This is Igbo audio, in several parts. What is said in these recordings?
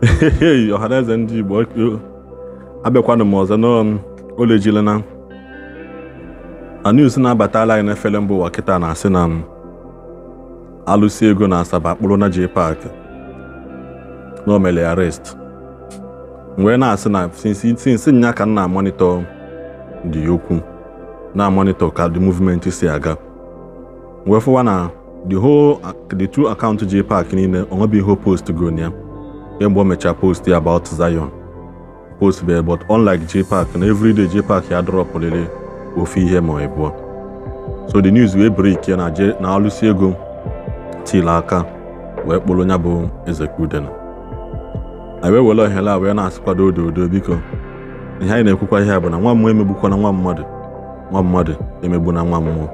Um, na ọhaneze ndị Igbo abịakwanụ m ọzọ n'olejila na news na-abatala anyị n'efere mba ụwa kịta na-asị na um, alụsi ego na Asaba akpụrụ na JPAC na omele arrest wee na-asị na sinsi nya ka nna na dị okwu na-amonitọ ka di movement si aga wee fụwa na the whole the two account niile ọ post gonia Egbo mechaa post ya about Zion post be but unlike JPAC na everyday JPAC ya dropụrịrị ofe ihe ma ịbụọ so the news wee break ya na alụsi ego til aka wee kpụrụ ya bụ Ezekudena anyị wee were ohere a wee na-asịkwado odo odo biko ihe anyị na-ekwukwa ihe bụ na nwa mmụọ na nwa mmadụ nwa mmadụ emegbu na nwa mmụọ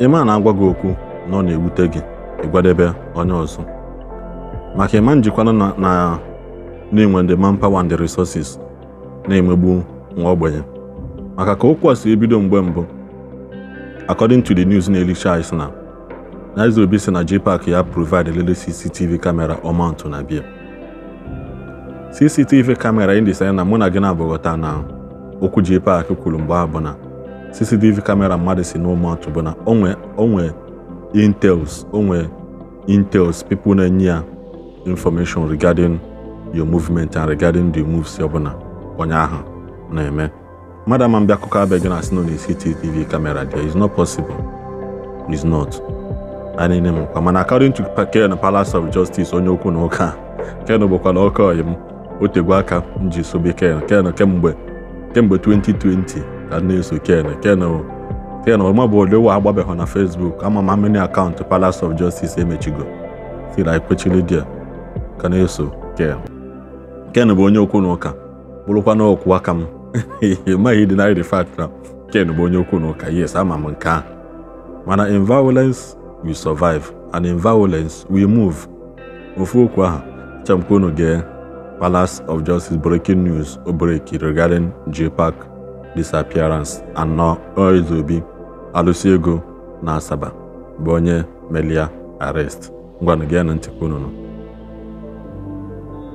ị na-agwa gị okwu na ọ na-ewute gị ịgwadebe onye ọzọ maka ịma njikwana na na-enwe ndị manpower and resources na-emegbu nwa ogbenye maka ka okwu a si ebido mgbe mbụ according to the news na-elicha anyị na Nze Obi si na JPAC ya provide elele CCTV kamera ọmantụ na bia CCTV kamera ndị sanye na mụ na gị na-abụghọta na okwu JPAC kwuru mgbe a bụ na CCTV kamera mmadụ si n'ọmantụ bụ na onwe nwee intels onwe intels people na-enye ya information regarding your movement and regarding the moves ọbụla onye ahụ na-eme mmadụ ama mbịa akụkọ abịa gị na asị nọ na CCTV camera there is not possible is not anene mkpa mana according to Ken Palace of Justice onye okwu na ụka Ken bụkwa na ọka oyi m otegwe aka m ji sobe Ken Ken kemgbe kemgbe 2020 ka na-eso Ken Ken Ken ọma bụ na Facebook ama m amini akaụntụ Palace of Justice emechigo si ekwechili dia ka na-eso ken ken bụ onye okwu na ụka bụrụkwa na okwu aka m maghị deny the fact na ken bụ onye okwu na ụka yes ama m nke a mana in violence we survive and in we move ofu okwu ahụ chọmkwa unu gee Palace of Justice breaking news break regarding park disappearance anọ Obi alụsi ego na Asaba bụ onye melia arrest ngwanụ gee na ntịkwa unu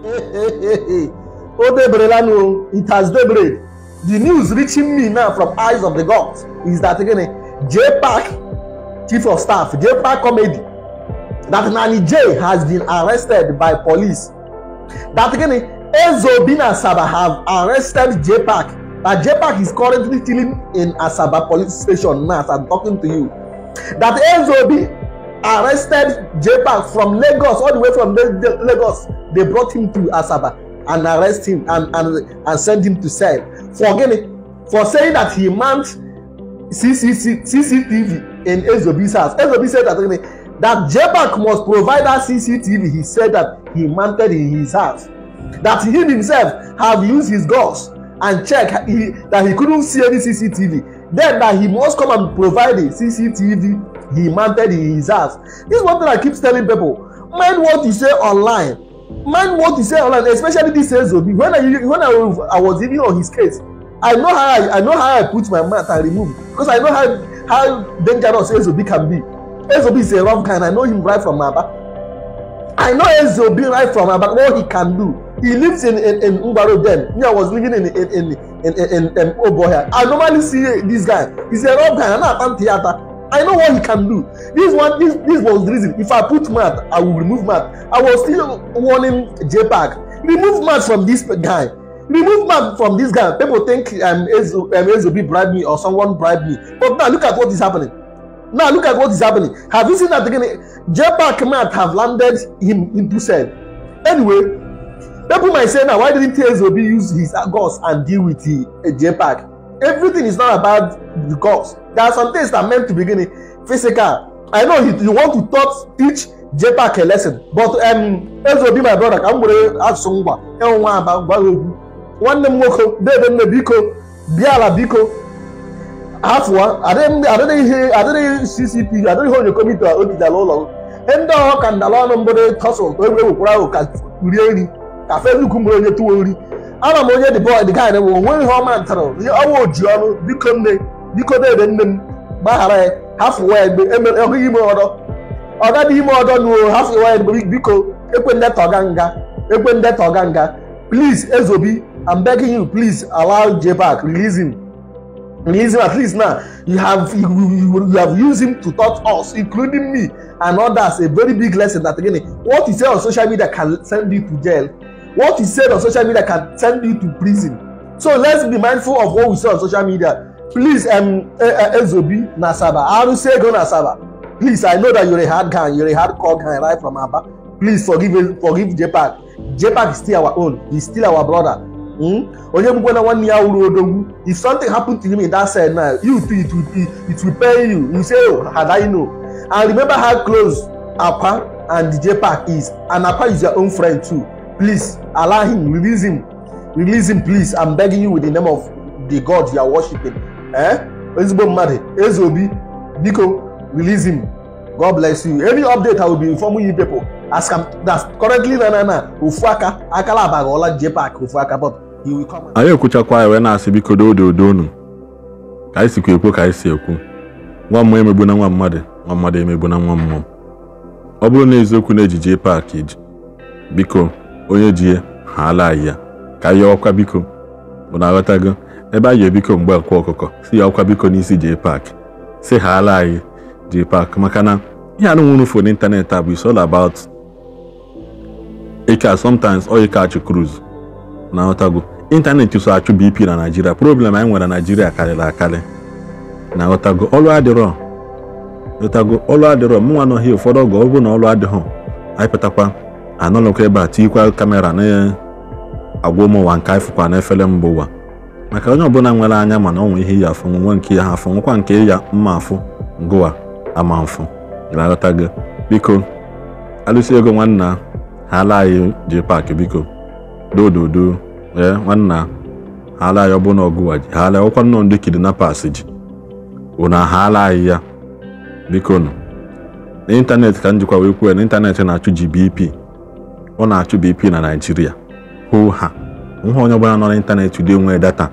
Oh, Odebre Lanu, it has daybreak. The news reaching me now from Eyes of the Gods is that again, J Park, Chief of Staff, J Park Comedy, that Nani J has been arrested by police. That again, Ezo Bin Asaba have arrested J Park. That J Park is currently chilling in Asaba police station now as I'm talking to you. That Ezo Bin arrested Jabal from Lagos, all the way from Lagos. They brought him to Asaba and arrest him and and and send him to cell for gini for saying that he mount CCTV in Ezobi's house. Ezobi said that gini that Jabal must provide that CCTV. He said that he mounted in his house. That he himself have used his guns and check he, that he couldn't see any CCTV then that he must come and provide a cctv he mounted in his house this one thing i keep telling people mind what you say online mind what you say online especially this ezobi when i when i, I was even on his case i know how i, I know how i put my mouth and remove because i know how how dangerous ezobi can be ezobi is a rough guy and i know him right from aba i know ezobi right from aba what he can do he lives in in in Ngwaro then me I was living in in in in in, in, in I normally see this guy he's a rough guy I know I theater. I know what he can do this one this this was the reason if I put math I will remove math I was still warning JPAC remove math from this guy remove man from this guy people think um, Ezo, um, Ezobi bribe me or someone bribe me but now look at what is happening now look at what is happening have you seen that again JPAC might have landed him into cell anyway people might say now why didn't Obi use his gods and deal with the uh, Pack? everything is not about the gods there are some things that are meant to begin in physical I know you, you want to taught, teach JPAC a lesson but um, Obi my brother ka m were asụsụ ngwa ịnwe nwa aba gwa ya okwu nwanne m nwoke debe nne biko bịa ala biko afọ adịghị ccp adịghị ihe onye komiti ogidala ụlọ ndị ọha ka ndala ọnụ mbụ tọsụl egwu ewekwara ahụ ka rie nri afe nnukwu mgbe onye tụwa ori ana m onye dịbọ dị gaị bụ onwe ihe ọma ntara ihe ọnwa oji ọnụ biko nne biko dede nne m gbaghara ya hafụwa ya ọhụghị ime ọdọ ọga dị ime ọdọ nuo hafụwa ya biko ekwe ndeta ọga nga ekwe ndeta ọga nga please ezobi i'm begging you please allow jbac release him release him at least now you have you, you, you have used him to touch us including me and others a very big lesson that again what he say on social media can send you to jail what is said on social media can send you to prison so let's be mindful of what we say on social media please um, eh, eh, ezobi nasaba arusego nasaba please i know that you're a hard guy you're a hard core guy right from aba please forgive forgive jpac jpac is still our own he's still our brother hmm? onye gbugbo na nwanne ya wuru odogwu if something happen to him in that side now you too it will it will pain you you say oh had i know and remember how close apa and jpac is and apa is your own friend too Please allow him, release him, release him, please. I'm begging you with the name of the God you are worshiping. Eh? Ezigbo mmadụ, Eze Obi, biko release him. God bless you. any update I will be informing you people. As am that's currently na na na Ofuaka akala abaghọla JPAC Ofuaka but he will come. Anyị ekwuchakwa wee na-asị biko doo odo unu ka anyị sikwa ekwu ka anyị si ekwu nwa mmụọ emegbu na nwa mmadụ nwa mmadụ emegbu na nwa mmụọ ọ bụrụ na eziokwu na ejije JPAC biko onye ji ya ha ala ya ka ya ọkwa biko bụ na aghọtago ebe anyị ebiko mgbe nkwa ọkụkọ si ya ọkwa biko n'isi jee paakị si ha ala anyị jee paakị maka na ihe anụ nwụrụ fon n'ịntanetị a bụ is all about ike sometimes ọ ka achụ cruise na aghọtago ịntanetị so achụ bp na naijiria problem anyị nwere na naijiria karịrị akarị na aghọtago ọlụ adịrọ aghọtago ọlụ adịrọ mụnwa nọghị ụfọdụ ọgụ ọ bụ na ọlụ adịghọ anyị pụtakwa anọlọkwa ebe a tikwa kamera na-agwa ụmụ ụwa nke anyị na efere mba ụwa maka onye ọbụla nwere anya mana ọ nwee ihe ya afụ nwe nke ya ha nwekwa nke ya mma afụ ngụwa ama mfụ ga gị biko alụsị ego nwanna ha ala anyị ji paakị biko dododo ee nwanna ha ala anyị ọbụna ọgụwa ji ha ala ọkwa nnọọ ndị kidnappers ji ụna ha ala anyị ya biko nọ n'ịntanetị ka njikwa wee kwuo n'ịntanetị na-achụ GBP ọ na-achụ BP e na Naịjirịa hụ ha nwa onye ọbụla nọ n'ịntanetị ụdị enwe data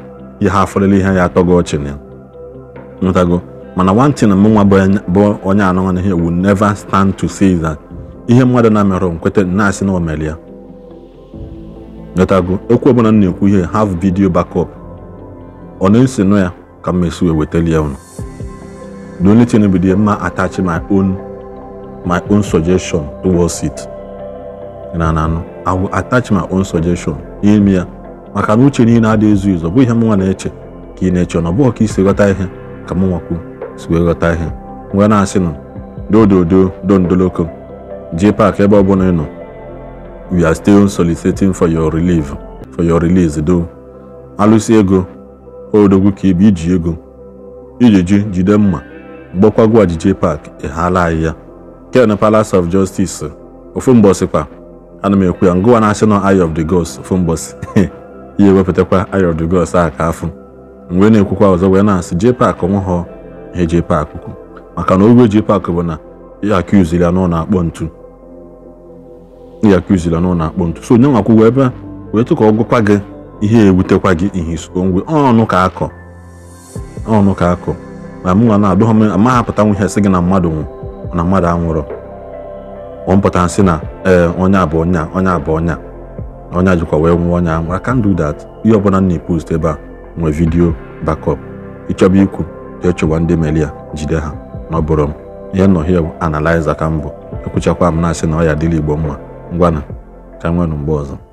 ihe afọlele ihe ya atọ gị ọchị na ntago mana nwantị na nwa bụ onye anọ na ihe will neva stand to say that ihe mmadụ na-emerụ nkweta na-asị na omeri ya ntago okwu ọbụla m na-ekwu ihe haf vidio bakọp ọ na-esi nụ ya ka m esi wetali ya ụnụ the only thing bụ mma attach my own my own suggestion towards it na na anọ I will attach my own suggestion n'ime ya maka na uche niile adịghị ezu izu ọ bụghị ihe mụnwa na-eche ka ị na-eche na ọ bụghị ka isi ghọta ihe ka mụ nwakwu si wee ghọta ihe wee na-asị na dododo dondoloko ji pak ebe ọ bụla nọ we are still soliciting for your relief for your release do alụsị ego odogwu ka ebe iji ego ijiji jide mma mgbakwago ajije pak ị haala anyị ya ken palace of justice ofu mgbọsịkwa ana m ekwu ya ngụwa national eye of the gods ofu mbọsi ihe ewepụtakwa eye of the gods a ka afụ mgbe na-ekwukwa ọzọ wee na-asị jee onwe ha ihe JPAC kwu maka na ogwe JPAC bụ na ya akụziri ya n'ụlọ akpọ ntu ya akụziri ya n'ụlọ akpọ ntu so onye nwakwụgwọ ebe wee tụka ka gị ihe ebutekwa gị ihe iso onwe ọnụ ka akọ ọnụ ka akọ ma mụnwa na-adụghọ m amahapụtanwu ihe sị gị na mmadụ nwụ na mmadụ anwụrụ ọ pụtara sị na ee onye abụ onya ọnya abụ onya onye jikwa wee nwụọ ọnya ahụ I do that ihe ọbụla m na-epost ebe a nwee vidiyo backup ịchọba ikwu echọba ndị meli a jide ha na ọ bụrụ m ihe nnọọ analiza ka mbụ bụ ekwuchakwa m na-asị na ọ ya dịla igbo mma na ka m nwere mgbe ọzọ